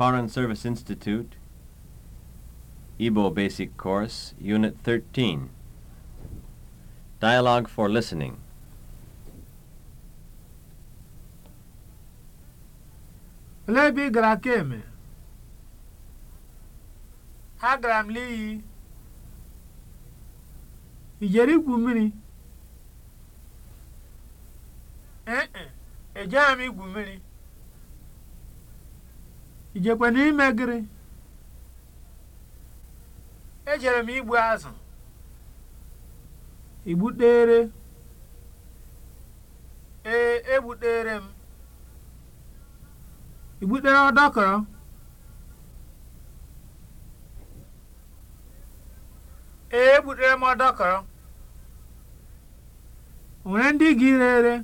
Foreign Service Institute, Igbo Basic Course, Unit 13. Dialogue for Listening. lebi ebe ị gara kemgbe? Agara eh n'iyi. I jere igwu mmiri? Eh, eh, ijekwe n'ime gịrị ejere m igbu azụ igbutere ee egbutere m igbutere ọdọkọrọ ee egbutere m ọdọkọrọ nwere ndị gị rere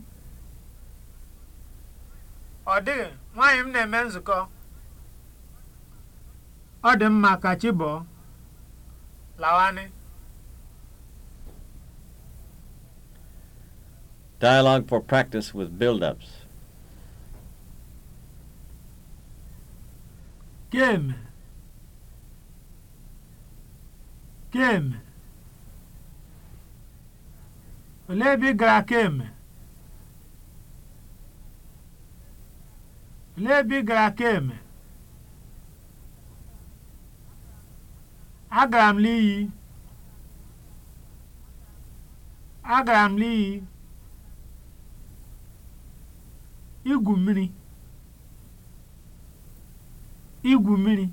ọ dịghị nwaanyị m na-eme nzukọ ọ dị mma ka chi bọọ lawanị Dialogue for practice with build-ups. Game. Game. Olee ebe gara keme? Olee gara keme? Agara m n'iyi. Agara m n'iyi igwu mmiri. igwu mmiri.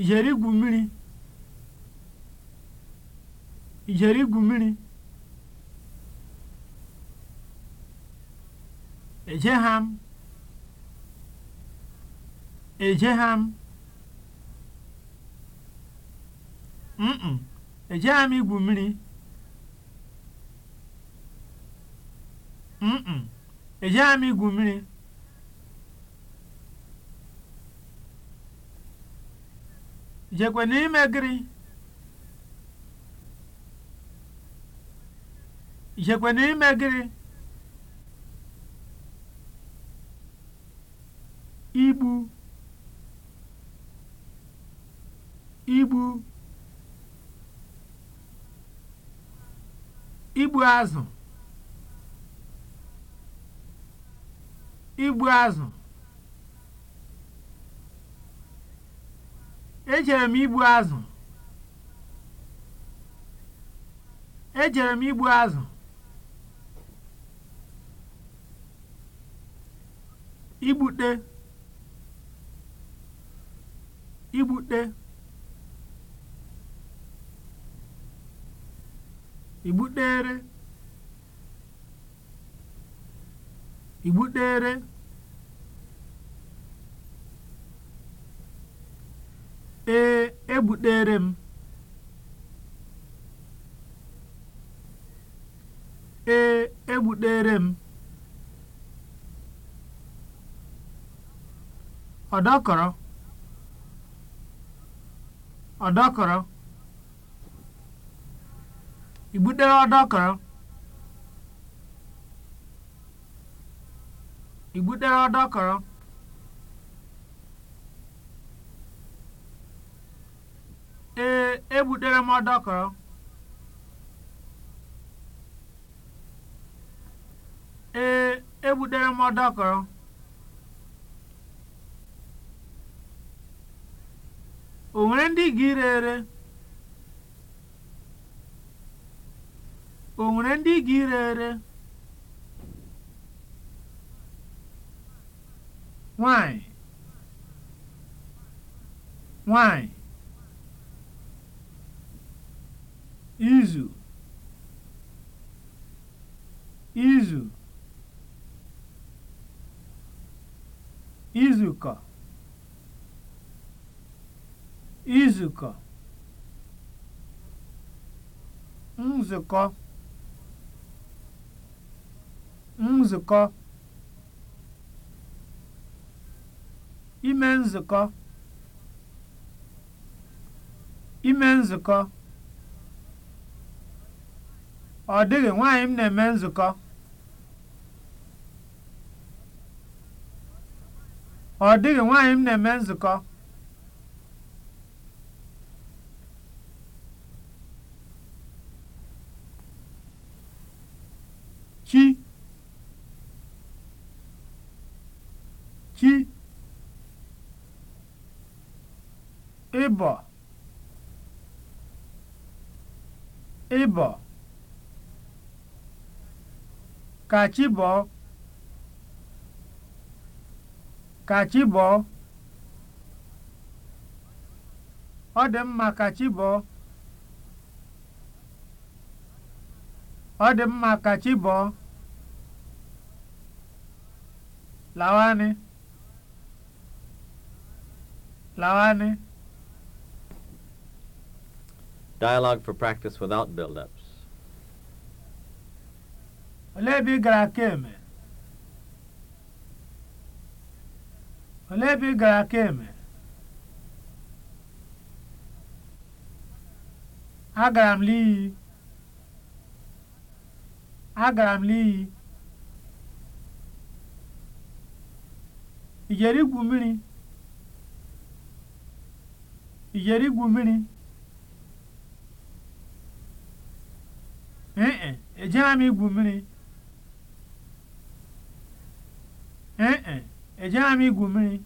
ijeri igwu mmiri. ijeri igwu mmiri. ejegham ejegham mkpụ ejeghị m igwu mmiri mkpụ ejeghị m igwu mmiri jekwe n'ime gịrị jekwe n'ime gịrị igbu igbu igbu azụ igbu azụ ejere m igbu azụ ejere m igbu azụ igbute igbute ìgbukpere ìgbukpere ee egbukpere m ee egbukpere m ọdọkọrọ ọdọkọrọ I butere ọdọkọrọ? I butere ọdọkọrọ? Ee, ebutere m ọdọkọrọ. Ee, ebutere m ọdọkọrọ. O nwere ndị ga ire ere? O nwere ndị ga ire ere? Nwanyị, nwanyị. Izu, izu. Izukọ, izukọ. Nzukọ. nzukọ ime nzukọ ime nzukọ ọ dịghị nwaanyị m na-eme nzukọ ọ dịghị nwaanyị m na-eme nzukọ ịbọ ịbọ kachibọ, chi ọ dị mma kachibọ, ọ dị mma kachibọ, chi bọọ lawanị lawanị Dialogue for practice without build-ups. Olee ebe ị gara Keme? Olee ebe ị gara Keme? m Liyi. Agara m Liyi. Ị jere igwu mmiri? Ị jere Ejela m igwu mmiri. Ee e, ejela igwu mmiri.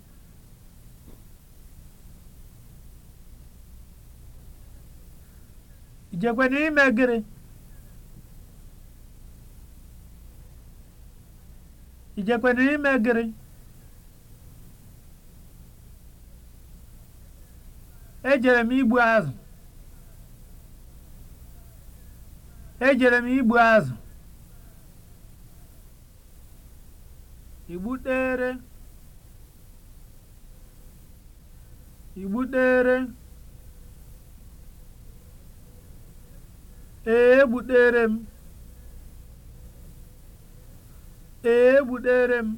I ime gịnị? I jekwara ime gịnị? Ejere m igbu azụ. ejere m igbu azụ igbutere igbutere ee egbutere m ee egbutere m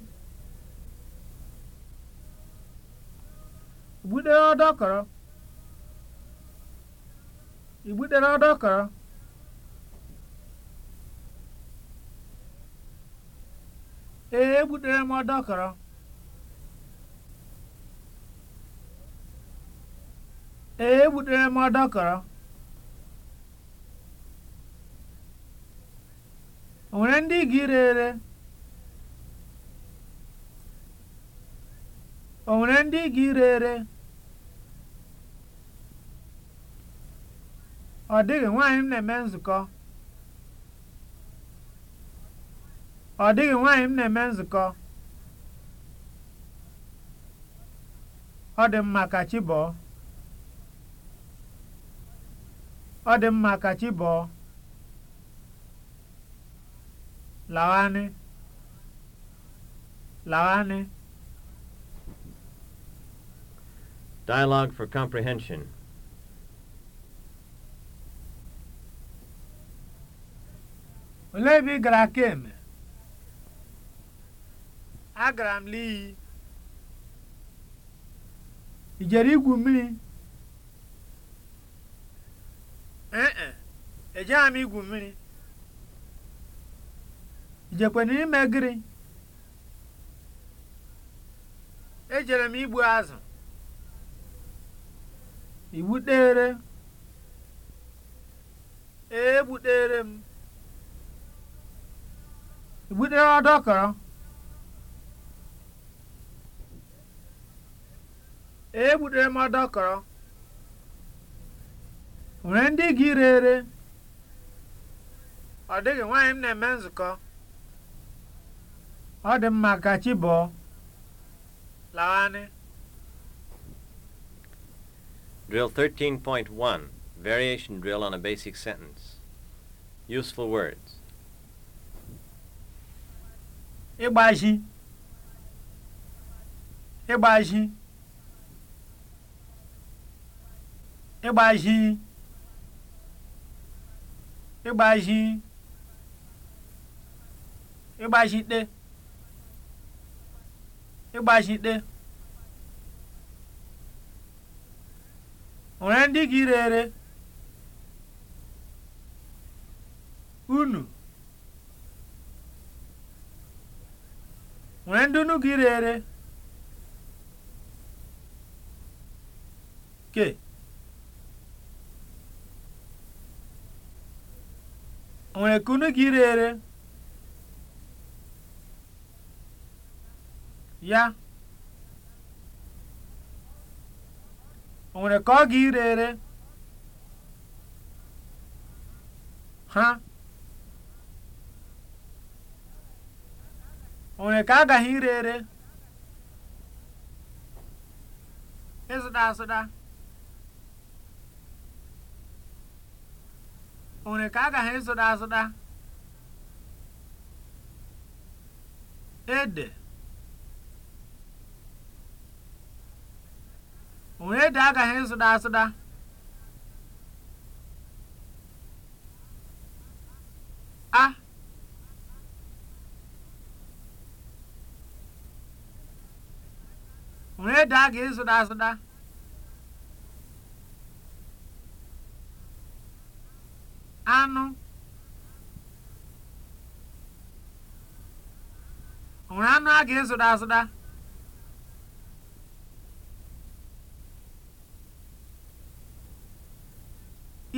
igbutere ọdọkọrọ igbutere ọdọkọrọ ee egbutere m ọdọkọrọ ee egbutere m o nwere ndị ga ire ere o nwere ndị ga ire ere ọ dịghị nwaanyị m na-eme nzukọ ọ dịghị nwaanyị m na-eme nzukọ ọ dị mma ka chi bọọ ọ dị mma ka chi bọọ Dialogue for comprehension. Olee ebe ị gara kemgbe? agara m n'iyi ị jere igwu mmiri ee ejeghị e m igwu mmiri ijekwana ime gịrị ejere m igbu azụ igbutere ee egbutere m igbutere ọdọkọrọ egbutere m dọkọrọ nwere ndị gị rere ọ dịghị nwaanyị m na-eme nzukọ ọ dị mma ka chi bọọ lawanị Drill 13.1 Variation drill on a basic sentence Useful words Ịgbaji Ịgbaji ịgbazi ịgbazi ịgbazite ịgbazite nwere ndị gị rere unu nwere ndị unu gị rere ke okay. nwere kunu gị ire ya onwere ka ọ ga ire ha onwere ka agaghị ire ere ịzụta azụta onwere ka a gaghị ịzụta azụta ede onwere ede agaghị ịzụta azụta a onwere ede a ga-ịzụta azụta anụ nwere anụ a ga-ezụda azụda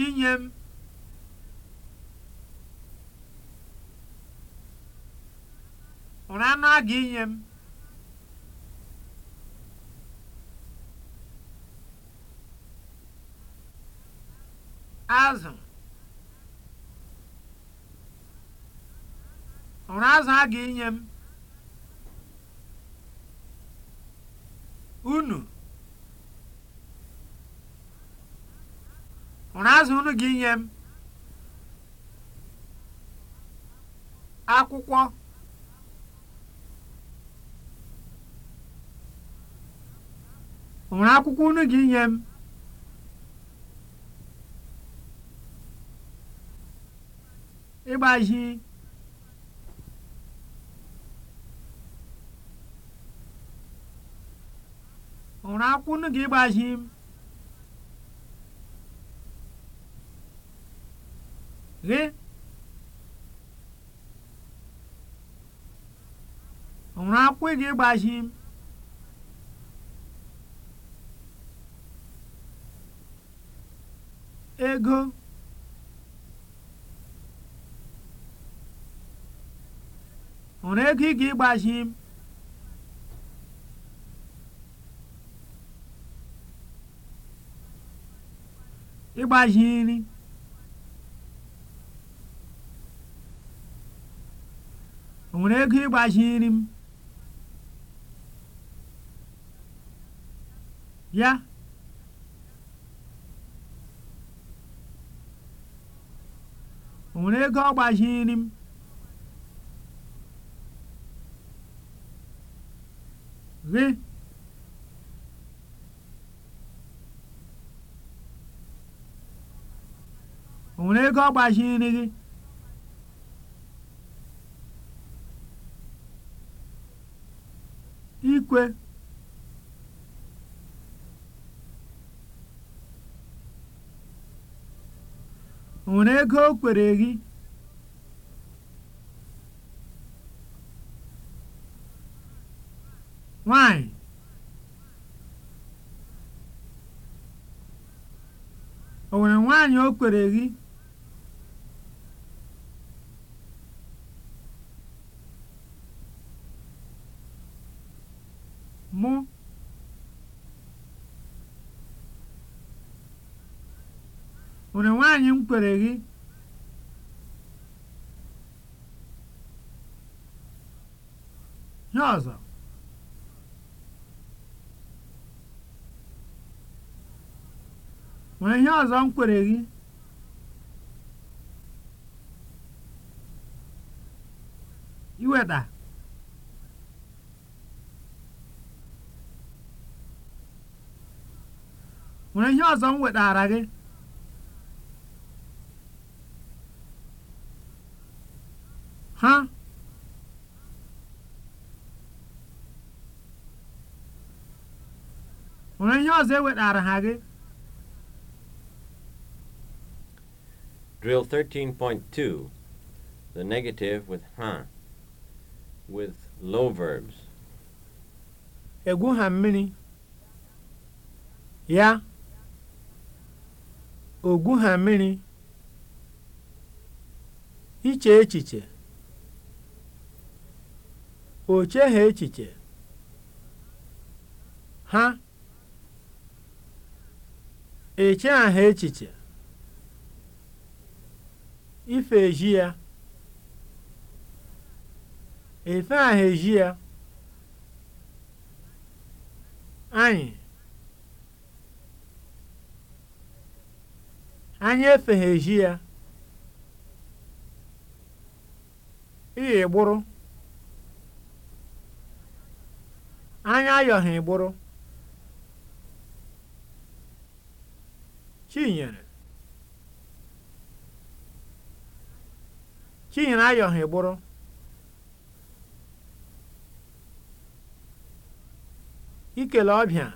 inye m nwere anụ a ga-inye m azụ hụrụ azụ a ga-enye m unu hụrụ azụ ga-enye m akwụkwọ hụrụ akwụkwọ unu ga-enye m ịgbaji gịnị ga ịgbaji m gị akwụkwọ ga m ego ọnwụrụ ego ị ga ịgbaji m ịgbazi nri o nwere ego ịgbazi nri m ya o nwere ego ọ gbazi nri m gị onwere ego ọ gbaziri gị ikwe onwere ego o kwere gị nwanyị o nwere nwaanyị o kwere gị mụ onye nwanyị m kwere gị ihe ọzọ nwere ihe ọzọ m kwere gị iweta nwere ihe ọzọ m wetara gị ha nwere ihe ọzọ ewetara ha gị Drill 13.2 The negative with ha with low verbs Egwu ha mmiri ya ogwu ha mmiri iche echiche oche ha echiche ha eche aha echiche ife eji ya efe aha eji ya anyị Anyị eji ya. Ịya ịgbụrụ. Anyị ayọghị ịgbụrụ. Chinyere. Chinyere ayọghị ịgbụrụ. Ikele ọbịa.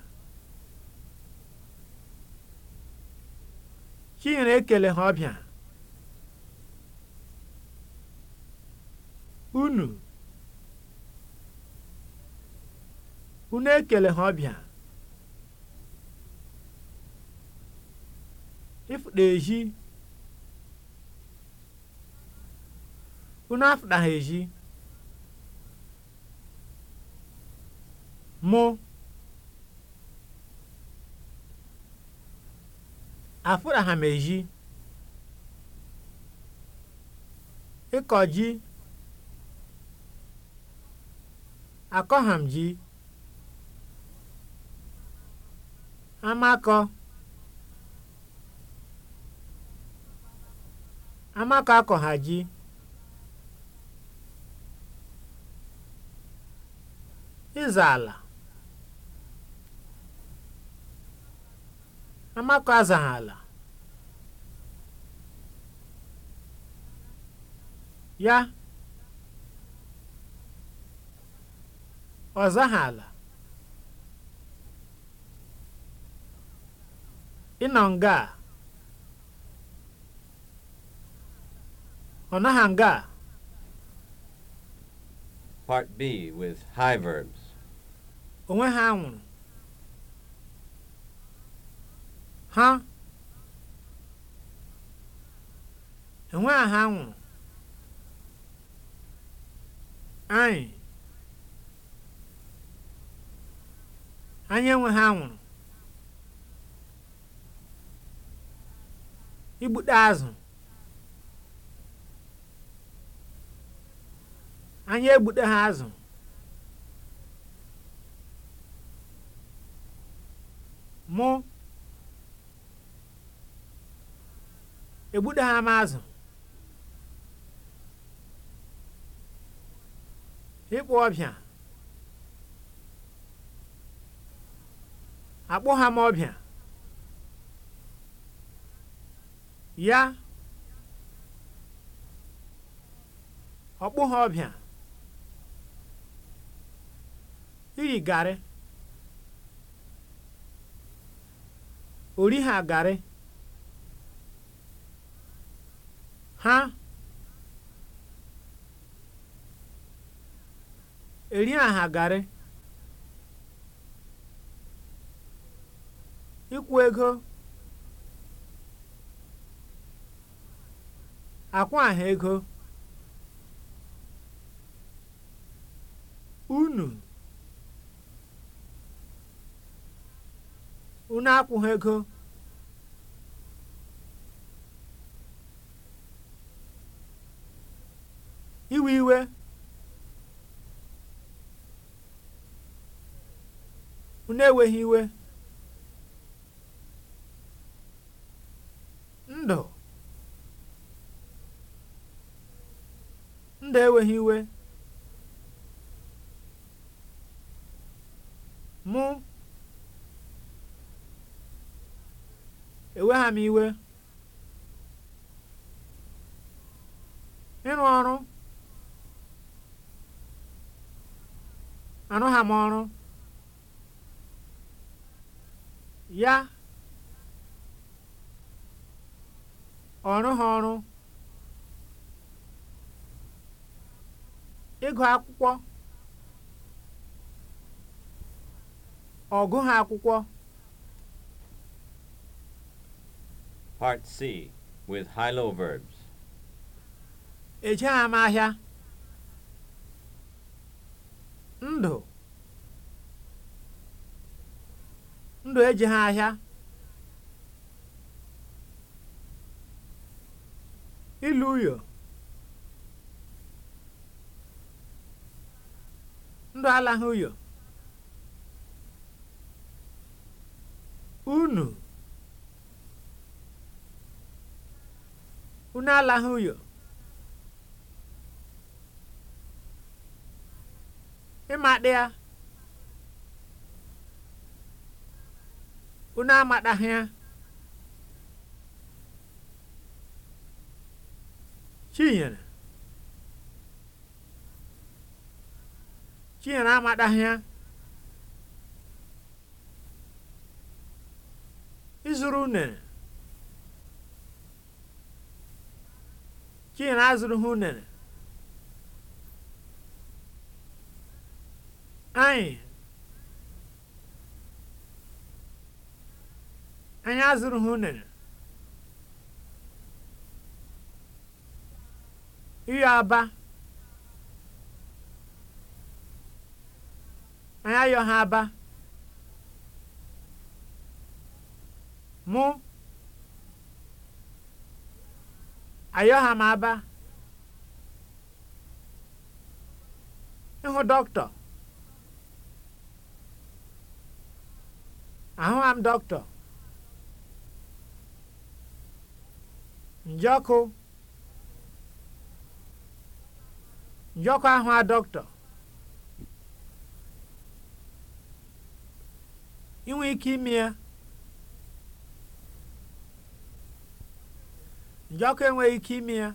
na ekele ha ọbịa unu unu ekele ha ọbịa ịfụda ehi unu afụda ha ehi mụ m eji, ịkọ ji, akọham ji, amakọ, amakọ akọ ha ji, ịza ala. Amaka azaghala ya ọ zaghala ị nọ nga a ọ naghị nga a Part B with high verbs. Onwe ha nwụrụ. ha enwe a ha nwụrụ anyị anyị enwe ha nwụrụ igbute azụ anyị egbute ha azụ mụ egbudaghị m azụ ịkpụ ọbịa akpụgha m ọbịa ya ọkpụha ọbịa iri garị ha garị ha eri aha garị ịkwụ ego akwa aha ego unu unu ego iwe iwe unu eweghị iwe ndụ ndụ eweghị iwe mụ ewegha m iwe ịrụ ọrụ arụ ha m ọrụ ya ọrụ ha ọrụ ịgụ akwụkwọ ọgụ ha akwụkwọ Part C with high-low verbs. Ejeghị m ahịa. ndụ ndụ e ha ahịa ilu uyo ndụ alaghị uyo unu unu alaghị uyo Ima ịmadịa unu amadahịa chinyere chinyere amadahịa izuru unere chinyere azuru ha unere anyị anyị azụrụ ha unere ịyọ aba anyị ayo ha aba mụ ayọ ha m aba ịhụ dọkịta ahụghị m dọkịta njọkụ ahụ a dọkịta inwe ike enweghị ike ime ya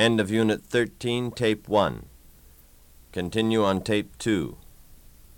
End of Unit 13, Tape 1. Continue on Tape 2.